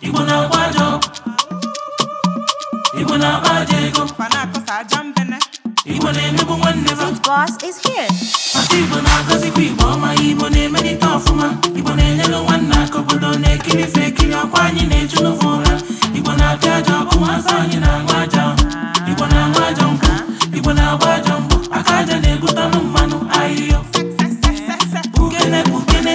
igbo na-agba aja igbo na-agba ego igbo na-emegbu nwanne igbo na na-emelite ọfụma igbo na-enyere nwanne aka obodo na-ekiri ekiri anyị na-eju igbo na-apịa aja anyị na-aṅụ aja na aja aka na mmanụ ukene ukene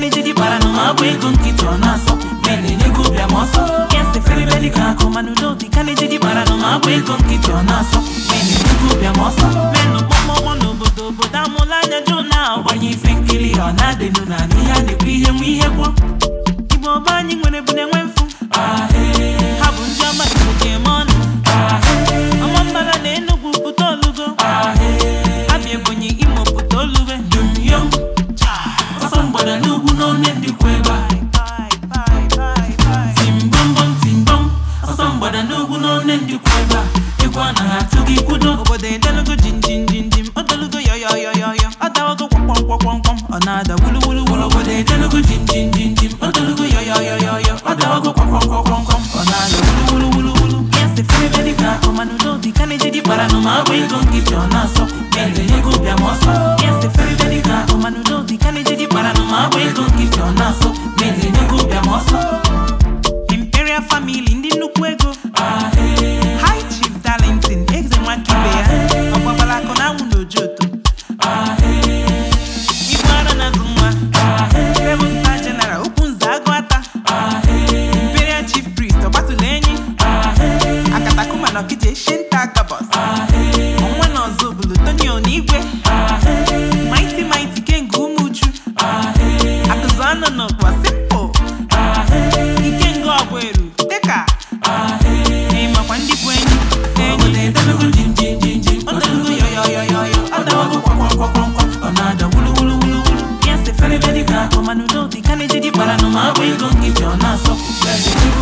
na-eji dị kpara na ma ọ bụ ego nkịtị ọ na-asọ ma na-enye gị ọsọ ama ọsọ everybody ka akụ mana udo dị ka na-eji kpara na ọ bụ ego nkịtị ọ na-asọ ma na gị ọsọ n'obodo obodo amụla anya jụ na ọgbanye ife nkiri ọ na na a na-ekwu ihe nwe ihe ọba anyị nwere bụ na onye dịkwa ebe a timbọmbọm timbom ọsọ mgbada n'ugwu na onye dịkwa ebe a egwu anaghị atụ gị kwudo obodo edelugo jinjinjinjim odelugo yọyọyọyọyọ ọdawago kwọmkwọmkwọmkwọm ọ na-ada wuluwuluwulu obodo edelugo jinjinjinjim odelugo yọyọyọyọyọ ọdawago kwọmkwọmkwọmkwọm ọ na-ada wuluwuluwulu yasị fere dịka akọmanụ n'obi ka na-eji dị kpara ma ọ ego nkịtị ọ na-asọ na-enye ego bịa ma ọsọ nọkwa sipo nke nga eru dịka ịmakwa ndị bụ enyi Yes, the very, very good. Come on, you know, the kind of GD,